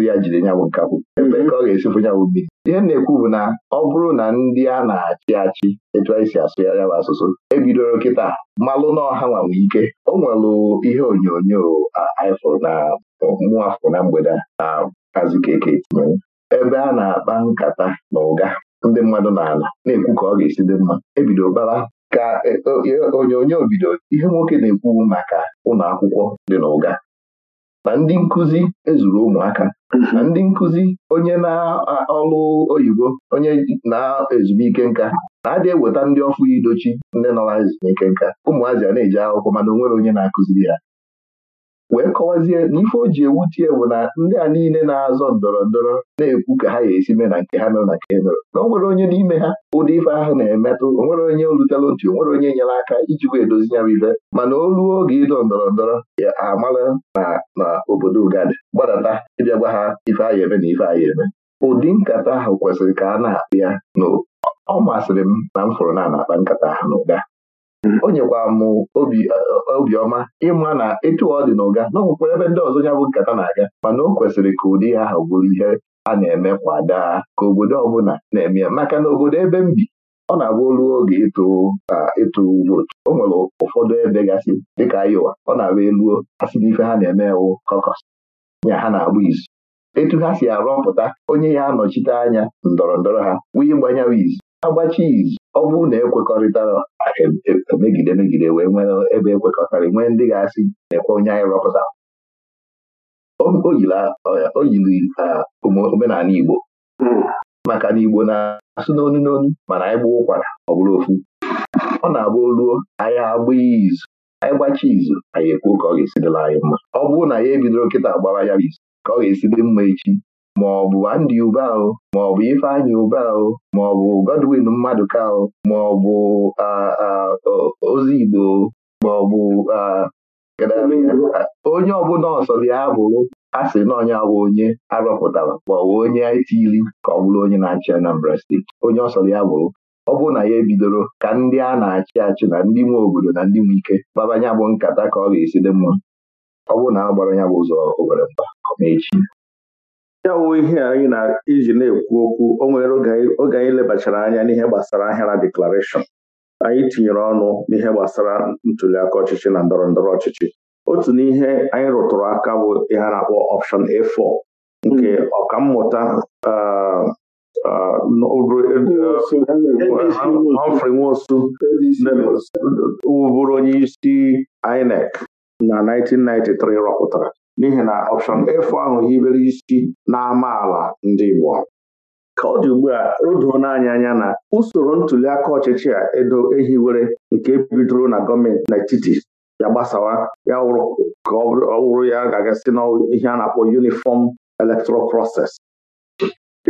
ya jide nyabụ nkakwụ mhm. ebe ka ọ ga-esifụ nyabụ mmiri ihe na-ekwu bụ na ọ bụrụ na ndị a na-achị achị etu anyị si asụ ya bụ asụsụ ebidoro kịta malụ na ọha nwanwe ike o nwelụ ihe onyonyo ifụrụ na mmụọ afọ na mgbede na azụ keke tinyere ebe a na-akpa nkata na ụga ndị mmadụ na na-ekwu ka ọ ga-esi dị mma ebido bara ka e, e, onyonyo bido ihe nwoke na-ekwu maka ụlọ akwụkwọ dị na ụga na ndị nkụzi ezuru ụmụaka na ndị nkụzi onye na ọlụ oyibo onye na-ezumike nka na-adị eweta ndị ọfụ idochi ndị nọ na ezumike nka ụmụazị a na-eji akwụkwọ mana nwere onye na-akụziri ya wee kọwazie na ife o ji ewutie bụ na ndị a niile na-azọ ndọrọ ndọrọ na-ekwu ka ha ga-esi mee na nke ha mere na nke mere na o nwere onye n'ime ha ụdị ife ahụ na-emetụ onwere nwere onye olutela otu o nwere onye nyere aka iji wee dozi ya ibe mana oluo oge ịdọ ndọrọ ndọrọ ya amala na na obodo ugadi gbadata ịbịa gwa ha ife anyị eme na ife anyị eme ụdị nkata ahụ kwesịrị ka a na-akpụ ya n'o ọ masịrị m na m fụrụ na na-akpa nkata ahụ o m eh, obiọma ịma na etu ọ dị na ụga ebe ndị ọzọ ya bụ nkata na-aga mana o kwesịrị ka ụdị ha ahụ bụrụ ihe a na-eme kwa daa ka obodo ọbụla na-eme maka na obodo ebe m bi ọ na-agba olu oge ịtụ vootu o nwere ụfọdụ ebe gasị dịka Iowa ọ na-agba eluo asị ife ha na-eme wụ kọkọs ya ha na-agba izu etu ha si arọpụta onye ya anọchite anya ndọrọ ndọrọ ha wee gbanya izu agbachi izu ọ bụrụ na ekwekọrịtara e, e, e megide megide wee nwere ebe ekwekọtara nwee ndị ga-asị na-ekwe onye anyị rọpụta o yiri omenala Igbo hmm. maka na Igbo na-asụ n'onu n'onu mana anyị gbuo ụkwara ọ bụrụ ofu ọ na-abụ oluo anyị agba izu anyị gbachi izu anyị ekwuo ka ọ ga-esi anyị mma ọ bụrụ na ya ebidoro nkịta agbara ya bụ izu ka ọ ga-esi dị mma echi maọbụ Andy Ube ahụ maọbụ Ifeanyị Ube ahụ maọbụ Godwin Mmadụka ahụ bụ ozi Igbo bụ onye ọbụla ọsọ ya bụrụ a sị na onye bụ onye arọpụtara maọbụ onye itili ka ọ bụrụ onye na-achị Anambra steeti onye ọsọrọ ya bụrụ ọ bụ na ya ebidoro ka ndị a na-achị achị na ndị nwe obodo na ndị nwe ike babanya bụ nkata ka ọ ga-esi dị mma ọ bụ na a gbara ya bụ ụzọ obere mba echi ya wụ ihe anyị na iji na-ekwu okwu o nwere oge anyị lebachara anya n'ihe gbasara ahịara deklarashọn anyị tinyere ọnụ n'ihe gbasara ntuliaka ọchịchị na ndọrọ ndọrọ ọchịchị otu n'ihe anyị rụtụrụ aka bụ ihe a na-akpọ ọpshọn A4 nke hmm. ọkammụta e, e, Humphrey Nwosu wụbụrụ onye isi INEC na 1993 rọpụtara n'ihi na ọpshọn efu ahụ hibere isi n'amaala ndị Igbo ka ọ dị ugbu a o doo n'anya anya na usoro ntuli aka ọchịchị a edo ehiwere nke bidoro na gọọmenti n'etiti ya gbasawa ya wụrụ ka ọ wụrụ ya ga-agasị na ihe a na-akpọ yunifọm electoral proses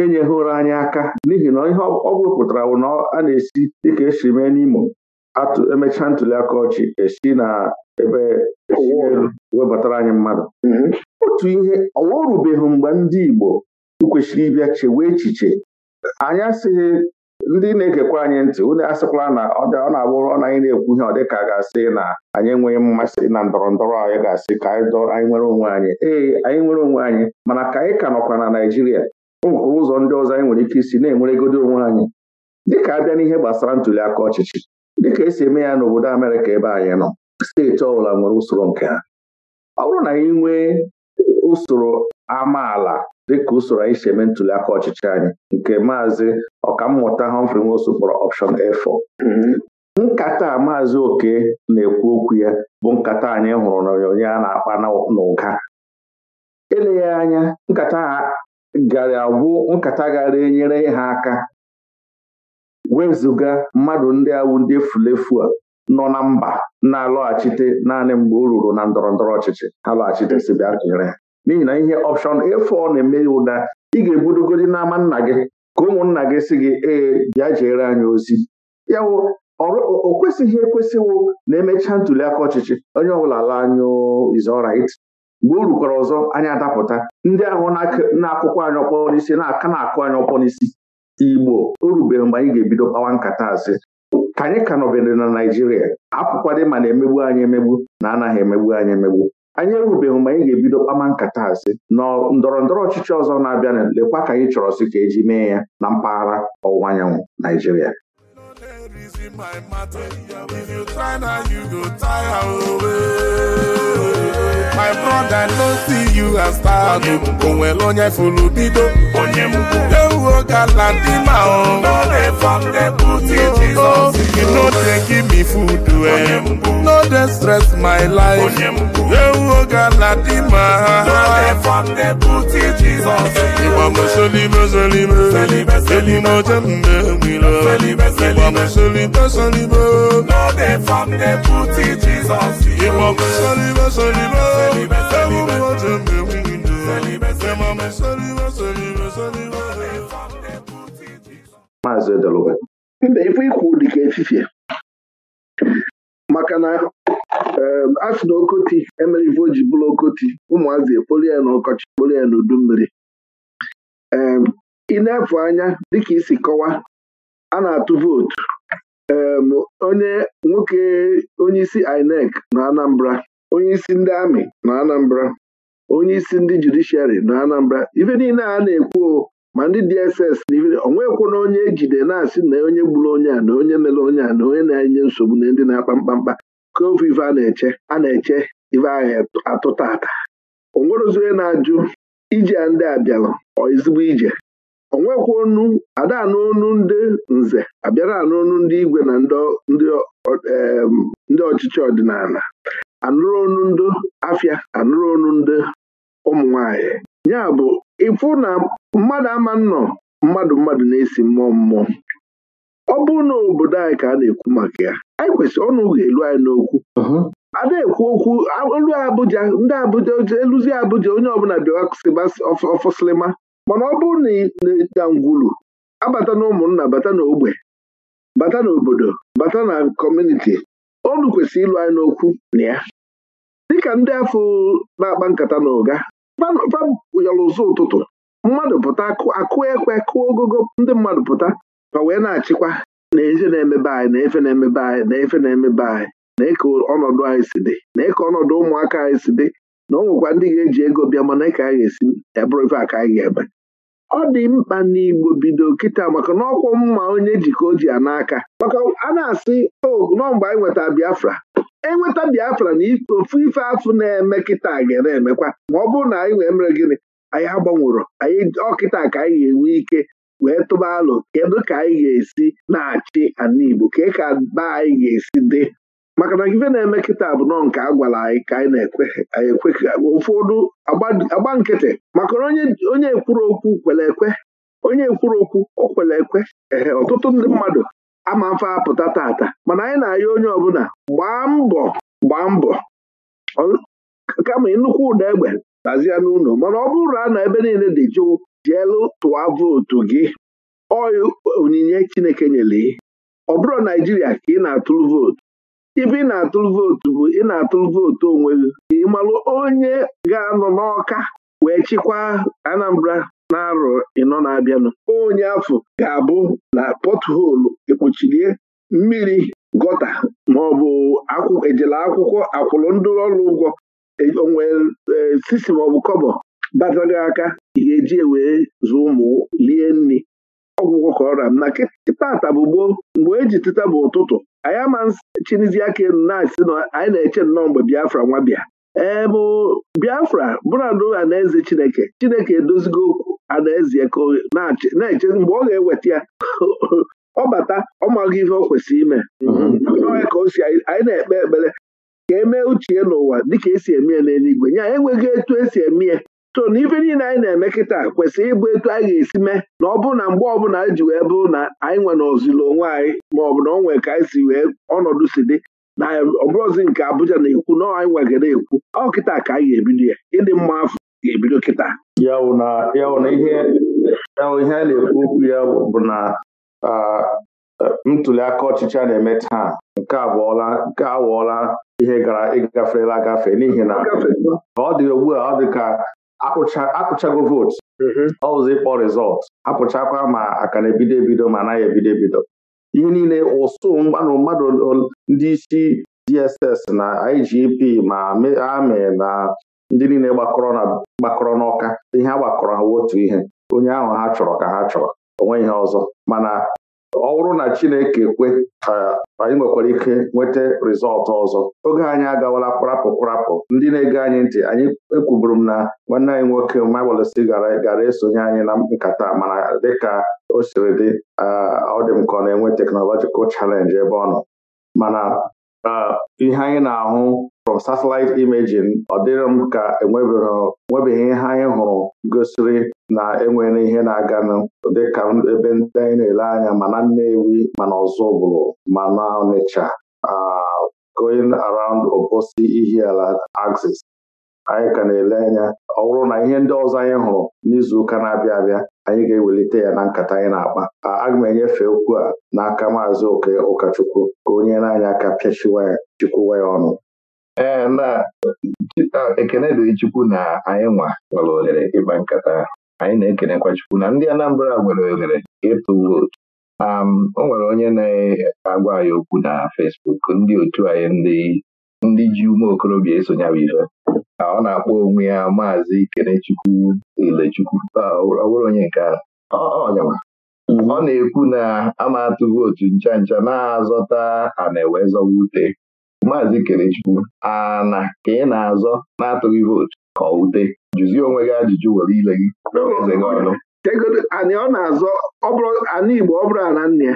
enyeghịra anyị aka n'ihi na ihe ọ bụrụ pụtara bụ na a na-esi dịka esi mee n'Imo emechaa ntuli aka ọchị esi na ebe e elu webatara anyị mmadụ mm-hmm. otu ihe ọwa mgbe ndị Igbo kwesịrị ịbịa chewe echiche anyị asịghị ndị na-ekekwa anyị ntị onye asịkwala na ọ na-abụrụ ọ na anyị na-ekwu ihe ọ dịka ga-asị na anyị enweghị mmasị na ndọrọ ndọrọ anyị ga-asị ka anyị nwere onwe anyị ee anyị nwere onwe anyị mana ka anyị ka nọkwa na Naịjirịa ụzọ ndị ọzọ anyị nwere ike isi na-enweregodo onwe anyị dịka abịa n'ihe gbasara ntuli aka ọchịchị dịka esi eme ya n'obodo Amerịka ebe anyị nọ steeti ọbụla nwere usoro nke ha ọ bụrụ na anyị nwee usoro amaala dịka usoro anyị si eme ntuliaka ọchịchị anyị nke maazị ọkammụta Humphrey Nwosu kpọrọ ọpshọn A4 mm-hmm. nkata a maazị oke na-ekwu okwu ya bụ nkata anyị hụrụ n'onyonyo a na-akpa n'ụga eleghị anya nkata gara agwụ nkata gara enyere ha aka wezụga mmadụ ndị awụ ndị efulefu a nọ na mba na-alọghachite naanị mgbe o ruru na ndọrọ ndọrọ ọchịchị ha lọghachitesi bịa kere ha n'ihi na ihe ọpshọn efu ọ na-eme ya ụda ị ga-ebudogodi n'ama nna gị ka ụmụnna gị si gị ee bịa jeere anyị ozi ya ọ o kwesịghị ekwesịwụ na emechaa ntuliaka ọchịchị onye ọbụla ala anyụ is mgbe o rukwara ọzọ anyị adapụta ndị ahụ na akụkwọ anyị ọkpọ n'isi na-aka na-akụ anyị ọkpọ n'isi igbo o mgbe anyị ga-ebido kpawa nkata asị ka anyị ka nọbere na naijiria apụkwadị ma na-emegbu anyị emegbu na anaghị emegbu anyị emegbu anyị erubeghị mgbe anyị ga-ebido kpama nkata asị na ndọrọ ndọrọ ọchịchị ọzọ na-abịa lekwa ka anyị chọrọ sị ka eji mee ya na mpaghara ọwụwa anyanwụ naijiria my matter. you try now, you go my brother no see you as star o nwere onye furu bido ewuo gala ma ọ no dey give me food eh no dey stress my life onye ewu oga dị ma no dey mọsolime solime elime jesus mgbe nwilo ịgba mọsolime solime ịgba mọsolime solime maazị Edeluga mba ife ikwu dịka efifie maka na a na okoti emere ife o ji bụrụ okoti ụmụazị ekpori ya na ọkọchị kpori ya n'udu mmiri ee ị na-efu anya dịka isi kọwaa a na-atụ vootu onye nwoke onye isi INEC na Anambra onyeisi ndị amị nọ Anambra onyeisi ndị judishiari nọ Anambra ife niile a na-ekwu ma ndị DSS na ife na onye ejide na-asị na onye gburu onye a na onye mere onye a na onye na-enye nsogbu na ndị na-akpa mkpamkpa ka ofu ife a na-eche a na-eche ife ahụ atụta ata onwerozi onye na-ajụ ije a ndị abịalụ ezigbo ije onwekwa onu ada anụ ndị nze abịara anụ onu ndị igwe na ndị ọchịchị ọdịnala anụrụ onu ndị afịa anụrụ onu ndị ụmụ nwanyị ya bụ ịfụ na mmadụ ama nnọ mmadụ mmadụ na-esi mmụọ mmụọ ọ bụrụ na obodo anyị ka a na-ekwu maka ya anyị kwesịrị ọnụ ga-elu anyị n'okwu ada uh-huh. ekwu okwu olu Abuja ndị Abuja eluzi Abuja onye ọbụla bịara ọfọsịlịma mana ọ bụrụ na ịda abata na ụmụnna bata na bata n'obodo bata na kọmuniti olu kwesịrị ịlụ anyị n'okwu na ya dịka ndị afọ na-akpa nkata na ụga fayọrọ ụtụtụ mmadụ pụta akụ ekwe kụọ ogogo ndị mmadụ pụta ma wee na-achịkwa na efe na-emebe anyị na efe na-emebe anyị na efe na-emebe anyị na eke ọnọdụ anyị si dị na eke ọnọdụ ụmụaka anyị si dị na ọ nwekwa ndị ga-eji ego bịa mana eke anyị ga-esi ebụrụ ife aka anyị ga-eme ọ dị mkpa n'Igbo bido kịta maka na ọkwọ mma onye ji ka o ji ya n'aka maka a na-asị o oh, mgbe anyị nweta Biafra enweta Biafra na ofu ife afụ na-eme kịta ga na-emekwa ma ọ bụrụ na anyị wee mere gịnị anyị agbanwụrụ anyị ọkịta ka anyị ga-enwe ike wee tụba alụ kedu ka anyị ga-esi na-achị ala Igbo ka ka ba anyị ga-esi dị maka na ife na-eme kịta bụ nọ nke a anyị ka anyị na-ekwe ụfọdụ agba nkịtị maka onye ekwuru okwu kwere ekwe onye ekwuru okwu o kwere ekwe ee ọtụtụ ndị mmadụ ama mfe apụta tata mana anyị na-ayọ onye ọbụla gbaa mbọ gbaa mbọ kama nnukwu ụda egbe lazie n'ụlọ mana ọ bụrụ na a na ebe niile dị jụụ jielu tụwa vootu gị ọyị onyinye Chineke nyere ọ bụrụ Naijiria ka ị na-atụrụ vootu ibe ị na-atụrụ vootu bụ ị na-atụrụ vootu onwe gị ịmalụ onye ga-anọ n'ọka wee chịkwaa Anambra na-arọ ịnọ na-abịanụ onye afọ ga-abụ na pọtholu ekpuchilie mmiri gọta maọbụ ejela akwụkwọ akwụrụ ndị ọrụ ụgwọ e, onwe e, sisi maọbụ kọbọ batara aka ị ga-eji e wee zụọ ụmụ lie nri ọgwụgwọ ka ọra m na kịtata bụ gboo mgbe eji tịta bụ ụtụtụ anyị ama nsị chinizie aka elu na-asị na anyị na-eche nnọọ mgbe biafra nwa bịa ee mụ biafra na anaeze chineke chineke edozigo okwu anaeze ka na-eche mgbe ọ ga-eweta ya ọ bata ọ maghị ihe ọ kwesịrị ime n'ọhịa mhm. ka o si anyị na-ekpe ekpere ka e mee uche n'ụwa dị ka esi eme ya n'eluigwe ya enweghị etu esi eme ya so na ife niile anyị na-eme kịta kwesịrị ịbụ etu anyị ga-esi mee na ọ bụrụ na mgbe ọbụla anyị e ji wee bụrụ na anyị nwe na ozili onwe anyị ma ọ bụ na ọ nwee ka anyị si wee ọnọdụ si dị na ọbụrụzi nke Abuja na-ekwu na anyị nwe gara ekwu ọ kịta ka anyị ga-ebido ya ịdị mma afọ ga-ebido kịta ya na ihe ihe a na-ekwu okwu ya bụ na ntuli aka ọchịchị a na-eme taa nke awọọla ihe gara ịgaferela agafe n'ihi na ọ dị ugbu a ọ dị ka akụchago vootu mm-hmm. ọ ịkpọ rizọtụ apụchakwa ma aka na-ebido ebido ma anaghị ebido ebido ihe niile ụsụ mmanụ mmadụ ndị isi DSS na IGP ma amị na ndị niile gbakọrọ n'ọka ihe a gbakọrọ ha otu ihe onye ahụ ha chọrọ ka ha chọrọ onwe ihe ọzọ mana ọ bụrụ na Chineke kwe ka anyị nwekwara ike nweta rịzọlt ọzọ oge anyị agawala kparapụ ndị na-ege anyị ntị anyị ekwuburu m na nwanne anyị nwoke Maiwelesi gara gara esonye anyị na nkata mana dịka o siri dị ọ dị m ka ọ na-enwe teknọlọjikal chalenji ebe ọ nọ mana ihe anyị na-ahụ from satellite imaging ọ dịrị m ka enwebeghị ihe anyị gosiri na enwere ihe na-aganụ dịka ebe ndị anyị na-ele anya mana Nnewi mana Ọzụbụlụ mana Ọnịcha going around Obosi Ihiala axis anyị ka na-ele anya ọ bụrụ na ihe ndị ọzọ anyị hụrụ n'izuụka na-abịa abịa anyị ga-ewelite ya na nkata anyị na-akpa aga m enyefe okwu a n'aka maazị oke ụkọchukwu ka onye na-anya aka pịachiwa ya chikwuwa ya ọnụ ee na ekenedị Chukwu na anyị nwa nwere ohere ịgba nkata anyị na-ekenekwa Chukwu na ndị Anambra nwere ohere ịtụ vootu o nwere onye na-agwa anyị okwu na Fesbuk ndị otu anyị ndị ji ume okorobịa esonye bụ ife ọ na-akpọ onwe ya maazị ikenechukwu Ilechukwu ọ bụrụ onye nke ọ na-ekwu na ama atụ vootu ncha ncha na-azọta ana ewe zọwa ute Maazị a na ka ị na-azọ na-atụghị vootu ka ọ wute jụzie onwe gị ajụjụ were ile gị eze gị ọnụ e Anyị ọ na-azọ anị Igbo ọ bụrụ na nne ya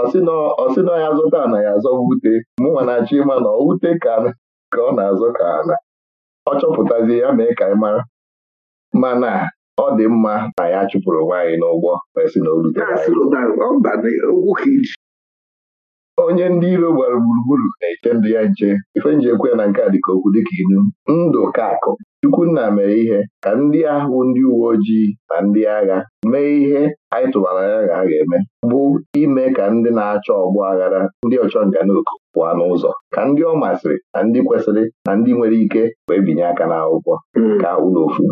ọsị na ya azọta ana ya azọ wute mụnwa na-achọ ịma na ọ wute ka ọ na-azọ ka ana ọ chọpụtazie ya mee ka ị mara mana ọ dị mma na ya chụpụrụ nwaanyị n'ụgbọ si na o rute onye ndị iro gbara gburugburu na-eche ndụ ya nche ife nji ekwe na nke a dịka okwu dịka inu ndụ ka akụ Chukwunna mere ihe ka ndị ahụ ndị uwe ojii na ndị agha mee ihe anyị tụbara ya ga aga ga-eme bụ ime ka ndị na-achọ ọgbọ aghara ndị ọchọ nga n'oku pụọ n'ụzọ ka ndị ọ masịrị na ndị kwesịrị na ndị nwere ike wee binye aka n'akwụkwọ hmm. ka ụlọ ofu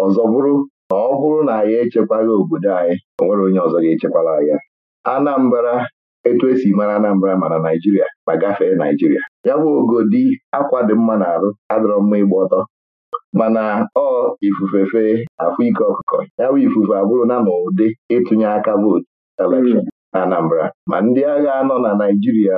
ọzọ bụrụ na ọ bụrụ na anyị echekwaghị obodo anyị o nwere onye ọzọ ga-echekwara ya anambara etu esi mara Anambra mana Naijiria ma gafee Naijiria ya bụ ogodi akwa dị mma na-arụ adọrọ mma ịgba ọtọ mana ọ ifufe fee afụ ike ọkụkọ ya bụ ifufe abụrụ na n'ụdị ịtụnye aka vootu elekshọn hmm. na Anambra ma ndị agha nọ na Naijiria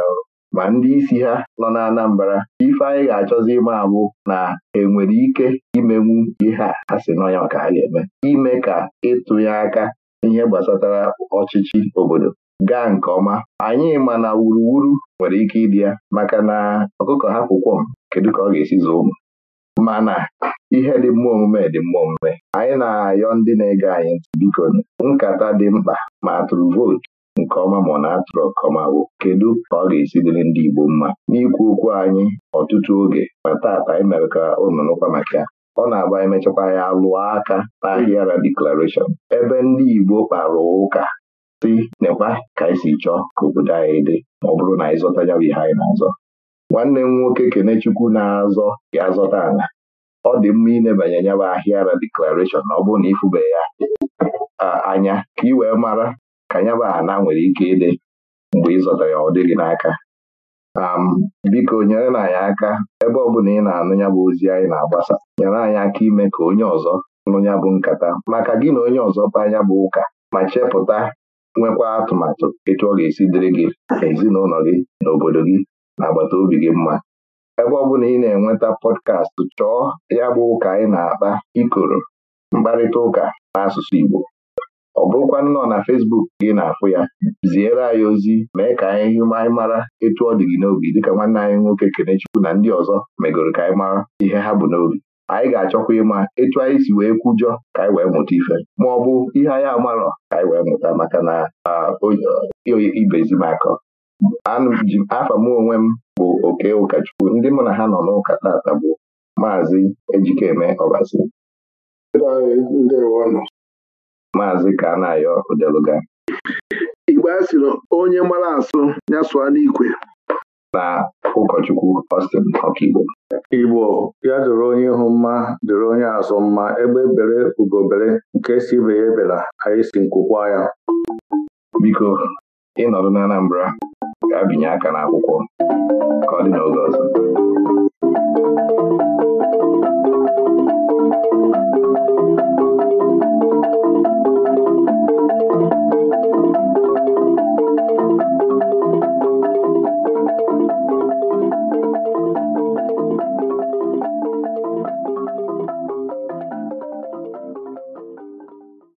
ma ndị isi ha nọ na Anambra ife anyị ga-achọzi ịma abụ na enwere ike imenwu ihe a ha si n'ọnya ka ha ga-eme ime ka ịtụnye aka n'ihe gbasatara ọchịchị obodo gaa nke ọma anyị ma na wuruwuru nwere ike ịdị ya maka na ọkụkọ hapụ kwọm kedu ka ọ ga-esi zoo ụmụ mana ihe dị mma omume dị mma omume anyị na-ayọ ndị na-ege anyị ntị biko nkata dị mkpa ma atụrụ vootu nke ọma ma ọ na-atụrụ nke ọma bụ kedu ka ọ ga-esi dịrị ndị Igbo mma n'ikwu okwu anyị ọtụtụ oge ma taata anyị mere ka ụnụnụkwa maka ya ọ na-agba emechakwa ya alụọ aka n'ahịara deklarashọn ebe ndị Igbo kpara ụka si nekwa ka anyị e si chọọ ka obodo anyị dị ma ọ bụrụ na anyị zọta ya ihe anyị na-azọ nwanne m nwoke Kenechukwu na-azọ ya zọta ala ọ dị mma ịnebanye nyaba ahịara deklarashọn na ọ bụrụ na ịfụbe ya anya ka ị wee mara ka nyaba ana nwere ike ịdị mgbe ịzọta ya ọ dịghị n'aka biko nyere na anyị aka ebe ọ bụla ị na-anụ ya bụ ozi anyị na-agbasa nyere anyị aka ime ka onye ọzọ nụ ya bụ nkata maka gị na onye ọzọ kpa anya bụ ụka ma chepụta nwekwa atụmatụ etu ọ ga-esi dịrị gị ezinụlọ gị na obodo gị na agbata obi gị mma ebe ọ bụla ị na-enweta pọdkast chọọ ya bụ ụka anyị na-akpa ikoro mkparịta ụka n'asụsụ Igbo ọ bụrụkwa nnọọ na Facebook gị na-afụ ya ziere anyị ozi mee ka anyị anyị mara etu ọ dị gị n'obi dịka nwanne anyị nwoke Kenechukwu na ndị ọzọ megoro ka anyị mara ihe ha bụ n'obi anyị ga-achọkwa ịma etu anyị si wee kwujọ ka anyị wee mụta ife ma ọ bụ ihe anyị amarọ ka anyị wee mụta maka na ibezimaka afa m onwe m bụ oke ụkọchukwu ndị mụ na ha nọ n'ụka tata bụ maazị Ejikeme Ọbasi maazị Kanayo Odeluga Igbe asịrị onye mara asụ ya sụọ n'ikwe na ụkọchukwu Austin Ọkigbo Igbo ya doro onye ihu mma doro onye azụ mma egbe bere ugobere nke si ibe ya ebela anyị si nkwụkwa ya biko ịnọdụ n'Anambra, Anambra ga binye aka n'akwụkwọ ka ọ dị n'oge ọzọ